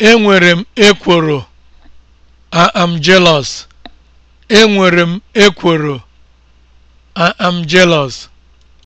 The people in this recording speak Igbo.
Enwere m ekworo. I am jealous. I am jealous.